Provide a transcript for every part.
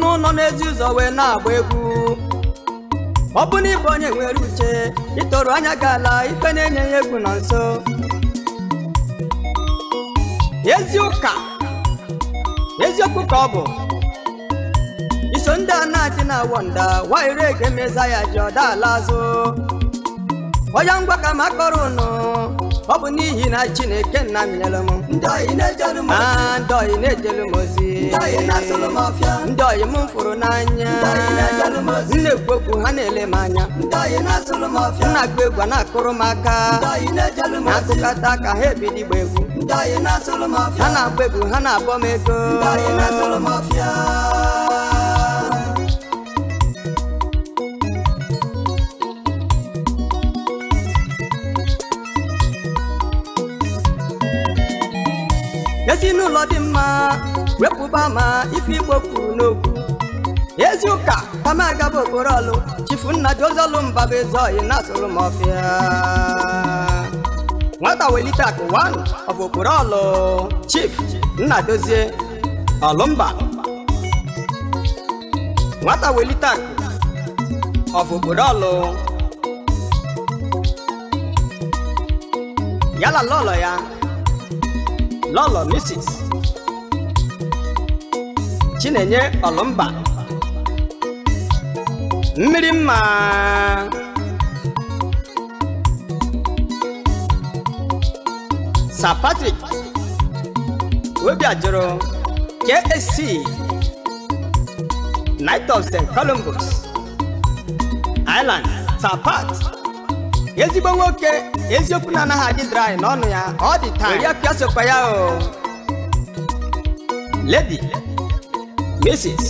n'ụlọ n'ezi ụzọ wee na-agba egwu ọ bụ na onye nwere uche ịtọrọ anya gị ala ife na-enye ya egwu na nso ezi ụka eziokwu ka ọ bụ iso ndị a na-adị na nwa waire ga-emeza ya ji ọda ala azụ onye ngwa ka ma ụnụ ọ bụ n'ihi na chineke nna m nyere m ndị oyi na-ejelu m ozi ndị oyi m fụrụ n'anya nna egwu ha na-ele m anya nna agba egwu a na-akụrụ m aka na-akụkọta ka ha ebido igba egwu ha na-agba egwu ha na-abọ m ego ezinụlọ dị mma wepụba ma ife igbo kwuru n'okwu ezi ụka tamagaba okporo ọlụ chifu nna bụ mbaba ọyị na asụrụ m ọfịa nwata welite akụ wanụ okporo ọlụ chif nna dozie nwata welite akụ ọ okporo ọlụ yala lọlọ ya lọlọ misis chinenye ọlụmba mmiri mma patric patrick obiajụrụ ksc night of st columbus island sapat ezigbo nwoke eziokwu na anaghị adị dry n'ọnụ ya ọ dị taa ya pịa sokwa ya o lady mrs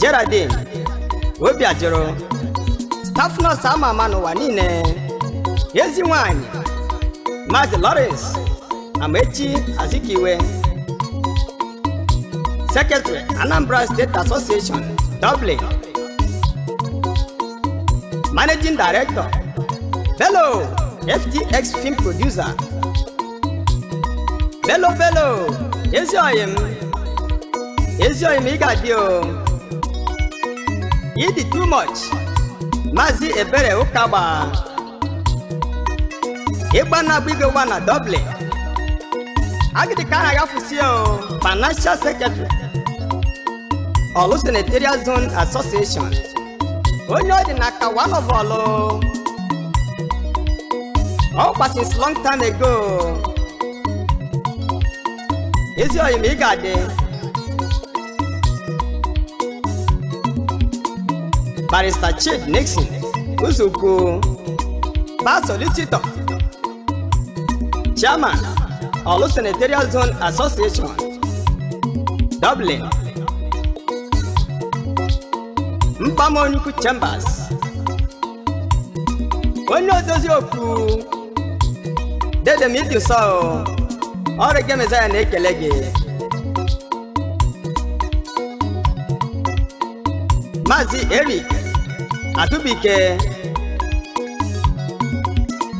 Geraldine obi ajụrụ staff nọọsụ ama ama n'ụwa niile ezi nwanyị Maazị Lawrence Amaechi Azikiwe Secretary Anambra State Association Dublin Managing Director, Bello, FTX Film Producer, Bello Bello, ị ga Igadio, You did too much, Mazi Ebere Ịgba Ukaba, Ibana na Dublin, a Agidikana o. Financial Secretary, Olu Senatorial Zone Association. onye ọ dị na kawa ọbọlụ ọkwa since long time ago ezi oyi ma ị ga-adị barista Chid Nixon Uzuku past solicitor chairman Olu Senatorial Zone Association Dublin mkpamonyukwu chambers onye ozozi okwu dedemidi nsọ ọrụ gị mezaya na-ekele gị maazị eric atubike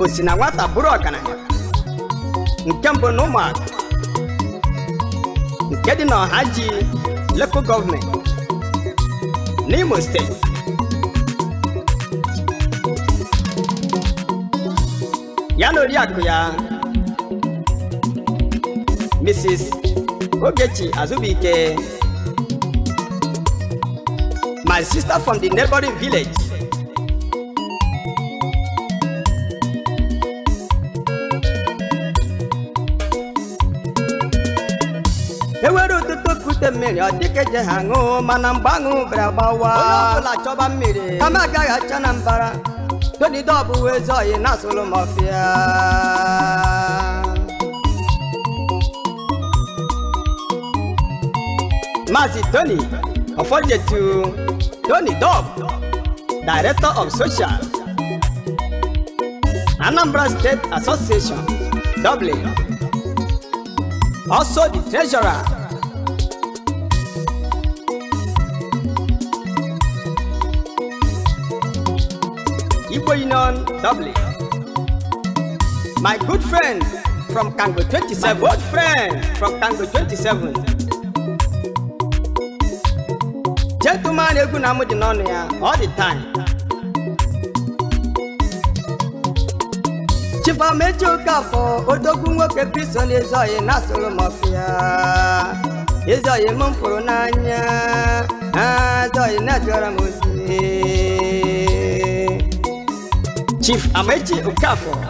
osina nwata bụrụ ọgaranya nke mbụ na ụmụaka nke dị n'ọha ji lokal gọọmenti n'Imo state, ya na Mrs. Ogechi Azubike my sister from the neighboring village miri dịkeje ha ṅụọ mana mgbe aṅụ bịara gbawa onye ọbụla chọba mmiri kama agaghị acha na mbara todide ọbụwa ezi na asụlụ m ọfịa maazị tony ọfọjetu tony dog director of social anambra state association dublin also the treasurer Igbo Dublin. My good friend from Kango 27, my good friend from Kango 27. Gentleman egwu na amụ dị ya all the time. Chifamechi Okafọ odogwu nwoke Kristọn Ezeoye na-asụrụ m ọfịa. fụrụ n'anya, ah, Ezeoye na-ajụra Chief Amaechi Okafor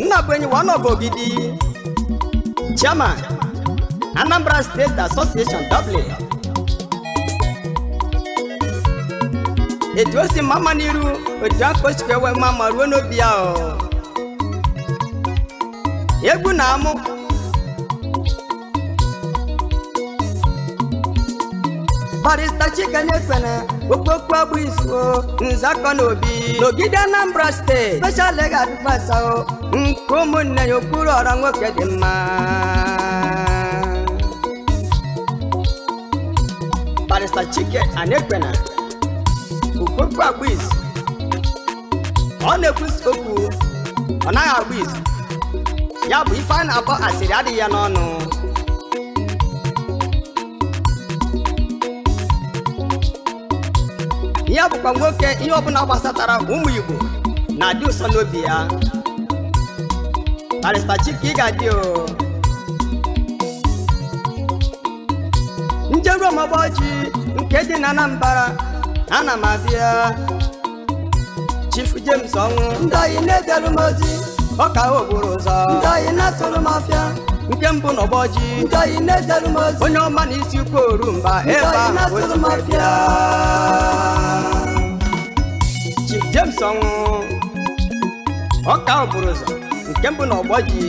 Nnabwenyi one of Ogidi Chairman Anambra State Association Dublin etu o si mama n'iru otu aka o sikwa enwe mma ma ruo n'obi ya egwu na-amụ barista chikenefene okpokpo agbaizuo nzakọ na obi n'ogide anambra steeti special legal advice nke ụmụnne ya okpuru ọra nwoke dị mma barista chike anekpena okpokpo agbaizu ọ na-ekwusi okwu ọ naghị agba izu ya bụ ife a na-akpọ asịrị adịghị ya n'ọnụ ya bụkwa nwoke ihe ọbụla gbasatara ụmụ Igbo na-adị ụsọ n'obi ya barịsta Chike ị ga-adị njeru ọmọgbọji nke dị na Anambra ana m abịa Chief James ọnwụ ndị anyị na-edere m ozi ọka ogboro ụzọ ndị anyị na-atụrụ m ọfịa. nke mbụ na ọgbọji ndị anyị na-edere m ozi onye ọma na isi ukwu orumba ebe ahụ otu Chief James ọnwụ ọka ọbụrụ ụzọ nke mbụ na ọgbọ ji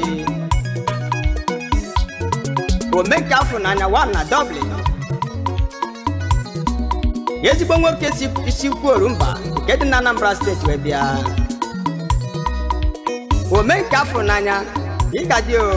omenka afọ n'anya wa na Dublin ezigbo nwoke si isi orumba nke dị na Anambra steeti wee bịa omenka afọ n'anya ịgadị o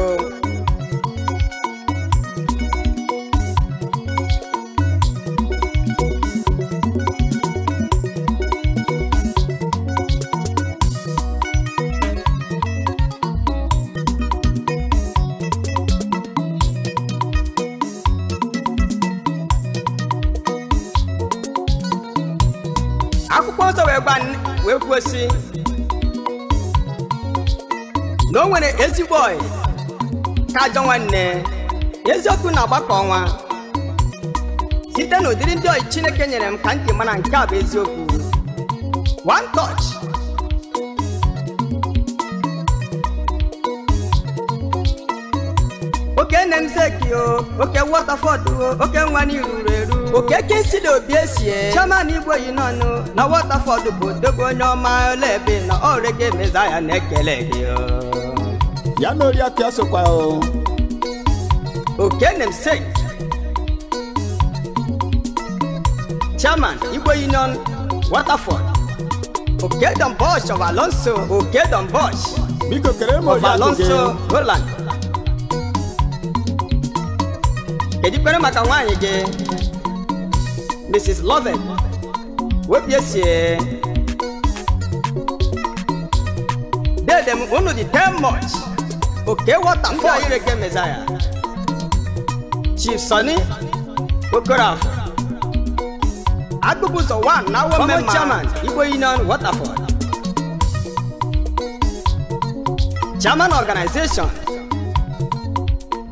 na o nwere ezigbo ọyị ka ajọ nwanne eziokwu na-agbakọ ọnwa site na ụdịrị ndị ọyị Chineke nyere m ka ntị mara nke a bụ eziokwu one touch oke nne m zekio oke Waterford oke nwa n'iru eru oke kesi na obi esie chairman igbo yi n'ọnụ na Waterford bụ dogo onye ọma ọla ebe na ọrege mezaya na-ekele gị ya na oriakụ ya sokwa okenemsek chairman igbo union waterford okedon bosh of alonso okedon bosh biko kere m of alonso roland kedu ikpere maka nwaanyị gị mrs loven wepụ esie dede m unu dị 10 much òkè waterfall ayé rege mẹsàyà chief sani okorafo agbógunso wa náwó mẹ́ma former chairman igbo union waterfall chairman organization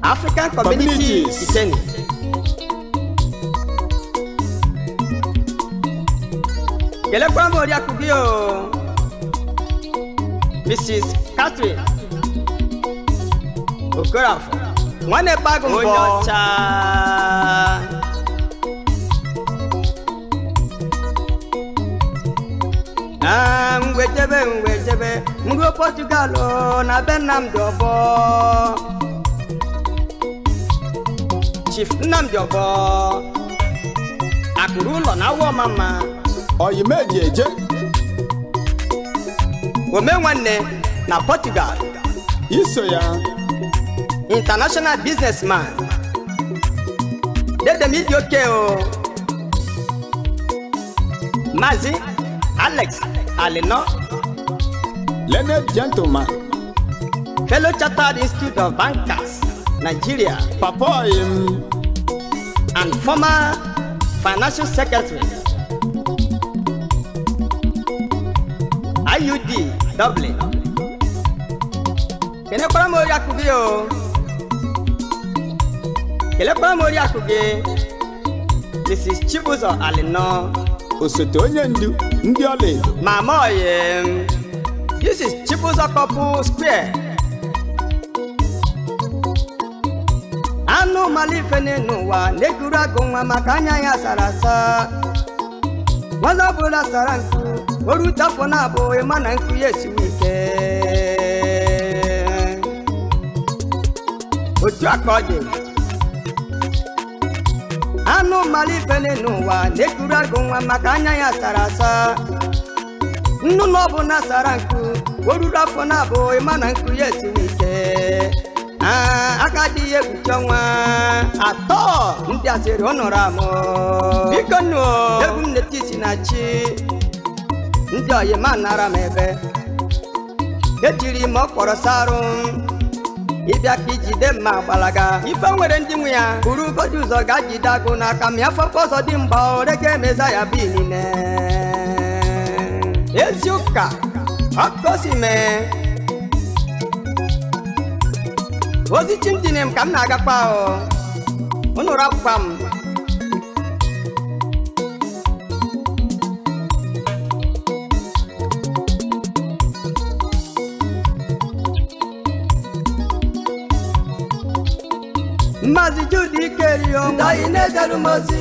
african community ìtẹ́ni. gẹlẹ́gbọ́n bò rí o mrs catherine. Okorafor nwanne bagụ mbọ onye ọcha na mgwejebe mgwejebe nruo Portugal na be Nnamdi Ọbọ Chief Nnamdi Ọbọ akụrụ ụlọ na awọ mama oyimeji eje ome nwanne na Portugal iso ya international businessman dedem ịdị oke o Mazi, Alex Alino Learned gentleman fellow Chartered Institute of Bankers Nigeria papa im and former financial secretary IUD Dublin kenekwara m ori akụgị o kelekwa m oriakụ gị Mrs. Chibuzọ Alinọ osote onye ndu ndị ọlaedo mama oyi this is Chibuzọ Couple Square anụ malife n'elu n'ụwa na ekuru agụ nwa maka anya ya sara asa nwata ọbụla sara nkụ na-abụghị ma na nkụ ya ike otu aka dị anụ mara n'ụwa na-ekuru agụ nwa maka anya ya sara asa nnu na asara sara nku o ruru afọ na abụ ịma na nku ya esiwe ike aka dị ihe egbuche nwa. atọ ndị asịrị ọ nọrọ amụ biko nnụọ, egwu m na chi ndị oyima nara m ebe ejiri m ọkpọrọ sarụ ịbịa ka ijide mma gbalaga. ga ife nwere ndị nwe ya buru ụbọchị ụzọ ga jide agụ n'aka mịa afọ ọzọ dị ore oreke emeza ya bi niile ezi ụka ọkụkọ si mee ozi chimdinem ka m na-agakwa ụnụrụ akwụkwa m mazi judi kerio oh. dai ne daru mazi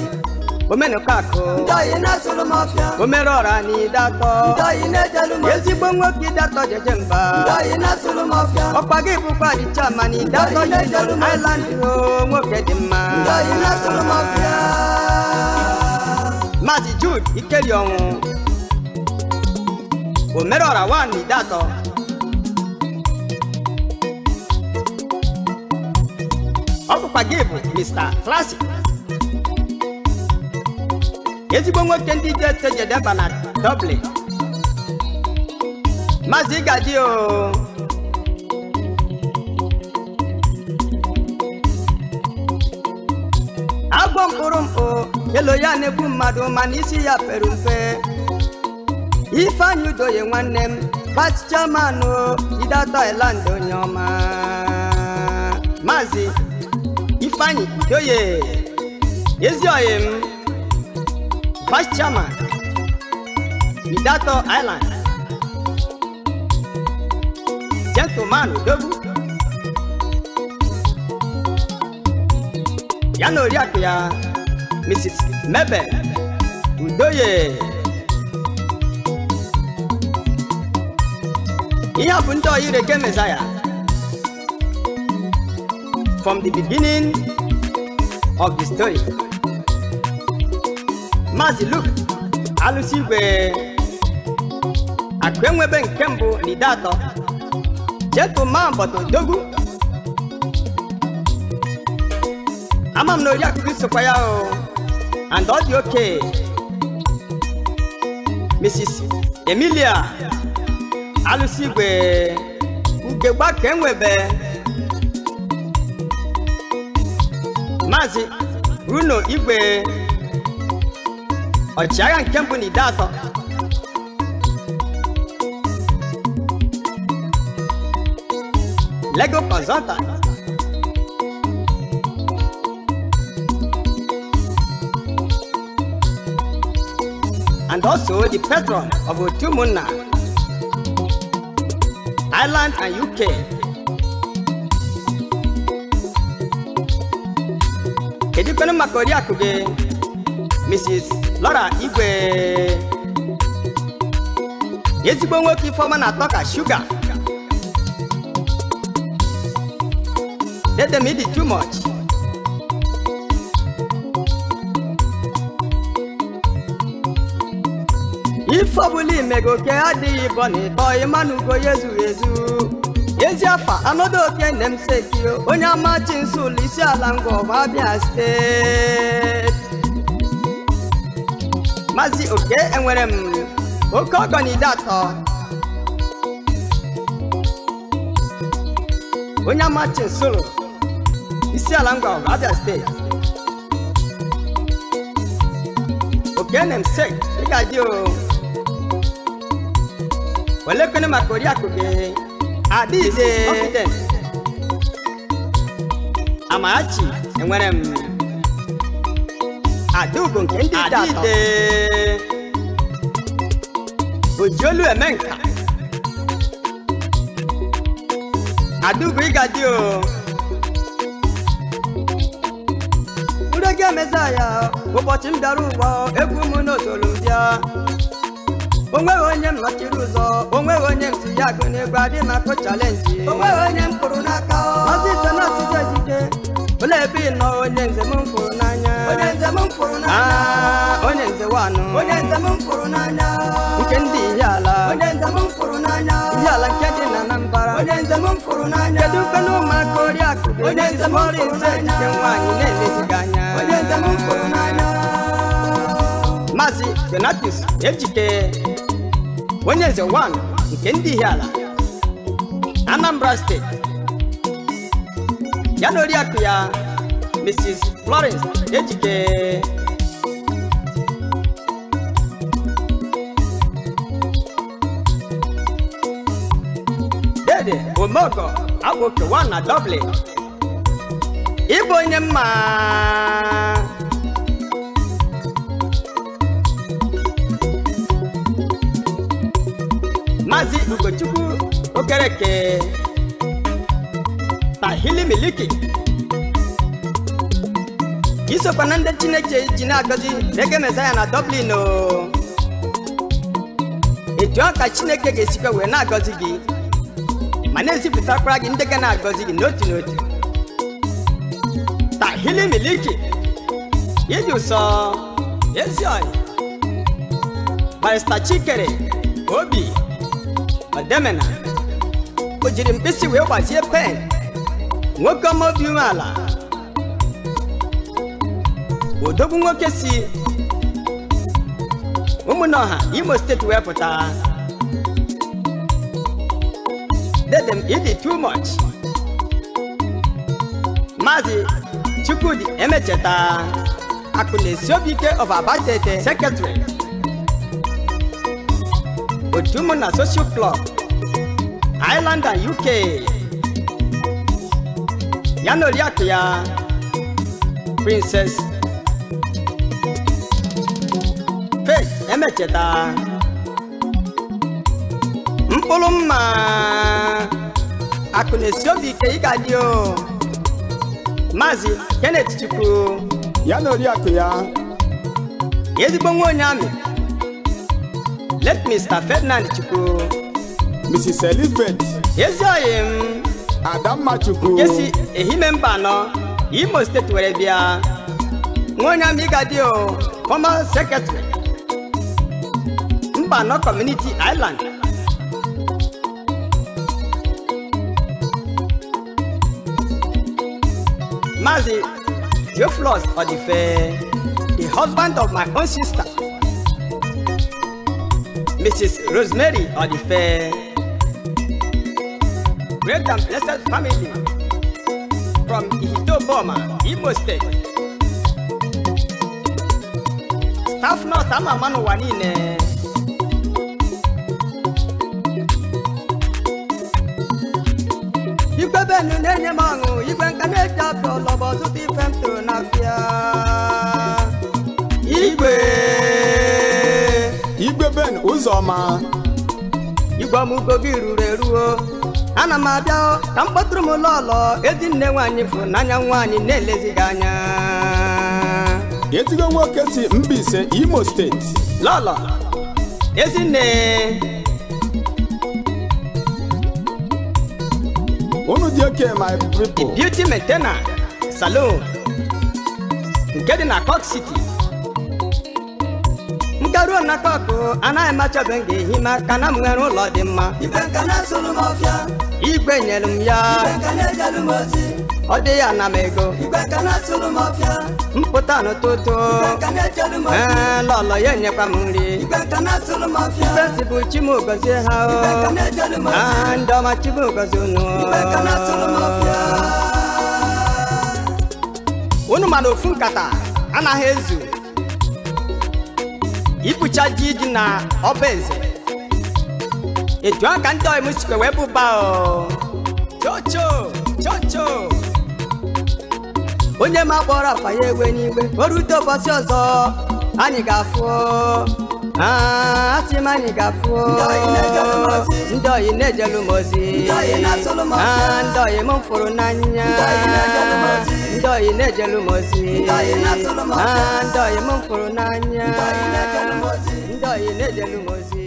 omenu kako dai ne suru mafia omerora ni dato dai ne daru mazi ezigbo nwoke dato jeje mba dai ne suru mafia ọkpa gị bụkwa chama ni dato jeje island o nwoke dị mma dai ne mafia mazi judi ikeri ọnwụ oh. omerora ni dato papa bụ Mr. classic ezigbo nwoke ndị dete jedeba na Dublin Maazị Gaji o agwọ mkpụrụ mkpụ elo ya na mmadụ mana isi ya pere mpe Ifeanyi Udoye nwanne m vice chairman Ida Thailand onye ọma Maazị ifeanyi oye ezioye m vice chairman midato island gentleman odogwu ya na oriakụ ya mrs mebel udoye ihe a bụ ndị ọyị ireke mezaya from the beginning of the story. Mazi Luke alụsi igwe akpenwebe nke mbụ na ide atọ cheto ma bọtụ odogwu ama m na oriakụ sokwa ya o and ọ dị oke Mrs. Emilia alụsi igwe ugegba ka enwebe maazị runo igwe ọchịagha nke mbụ na ide atọ lego kọzọnta and also the patron of ụmụnna ireland and uk kedukwenụ maka oriakụ gị Mrs. Laura Igwe ezigbo nwoke ifeoma na-atọ ka shuga let them eat too much ife ọbụla adịghị ịbọ na ịtọ ịma ya ezughị ezu ezi afa anodo obie nne m sekio onye ama chinsu ụlọ isi ala ngwa abịa steeti maazị oke enwere m oke ọgọ na ide atọ onye ama chinsu isi ala ngwa abịa steeti oke nne m sek ị ga-adị o olekwene maka oriakụ Adịghị Amachi enwere m Adaugo nke ndị dị atọ Ojiolu Emenka Adaugo Igadi o Nrege emeza ya ụbọchị m dara ụwa egwu m n'otolu bịa onweghị onye m ụzọ onweghị onye m ya agụ n'egwu adị makụ chalenji onweghị onye m kụrụ n'aka ọzi ite na ọtụtụ ejije olee ebe ị nọ onye nze m fụrụ n'anya onye nze m ah, nke ndị ihe ala ihe ala nke dị na Anambra kedu kwena ụmụaka oriakụ onye nze m ọrụ nze ejije nwaanyị na-elezighị anya onye nze m fụrụ Ejike onye eze 1 nke ndị Ihiala Anambra steeti ya na oriakụ ya Mrs. Florence Ejike dede omeọgọ akpụke 1 na Dublin ịbụ onye mma Maazị Ugochukwu Okereke Tahili Miliki isokwa na ndị Chineke ji na-agọzi n'ege Mesaya na Dublin etu ọka Chineke ga-esikwa wee na-agọzi gị ma na-ezipụtakwara gị ndị ga na-agọzi gị n'otu n'otu Tahili Miliki ịdị ụsọ ezi ọyị Barista Chikere obi ọdemena o jiri mkpịsị wee gbazie pen nwoke ọma obi umeala odogwu nwoke si ụmụnọha imo steeti wee pụta dedem ịdị too much maazị chukwudi emecheta akụ na-esi obi ike of abatete sekretari otu ụmụ na social club Ireland and UK ya na oriakụ ya Princess Faith Emecheta mkpụrụ mma akụ na-esi obi ike ịga dị o Maazị Kenneth Chukwu ya na oriakụ ya ezigbo nwa onye amị late Mr. Ferdinand Chukwu Mrs. Elizabeth Ezioyi m Adamma Chukwu Jesi Ehime Mbano Imo State were bịa ah. Nwonya o! former secretary Mbano Community Island Mazi Theophilus Odife the husband of my own sister Mrs. Rosemary Odife. Great and blessed family from Ihito Boma, Imo State. Staff nurse ama manu wanine. Igbebenu nenye ma ọma igwe ọmụgo gị ruru eruo ana m abịa ka m kpọtụrụ m lọlọ ezinne nwaanyị fụrụ n'anya nwaanyị na elezighi anya ezigbo nwoke si ise Imo steeti lọlọ ezinne unu dị oke my people beauty maintainer salon nke dị na Cork City nke ruo na kpakpo anaghị m m ga-ehi ma ka na m nwere ụlọ dị mma igwe nyere m ya ọ dị ya na m ego mpụta n'ụtụtụ ee lọlọ ya enyekwa m nri sesi bụ chimugozie ha ah, ndị ọma chimugozi unu unu ofu nkata anaghị ezu ibucha ji dị na ọba eze etu a ka ndị ọyịm sikwe wee bụba chocho chocho onye ma kpọrọ afa ya ewe n'igwe oru rute ụbọchị ọzọ anyị ga-afụ asị m anyị ga-afụ ndị oyi na-ejelụ m ozi ndị oyi m fụrụ n'anya ndoyi nejelumuzi ndoyi mumfuru n'anya ndoyi nejelumuzi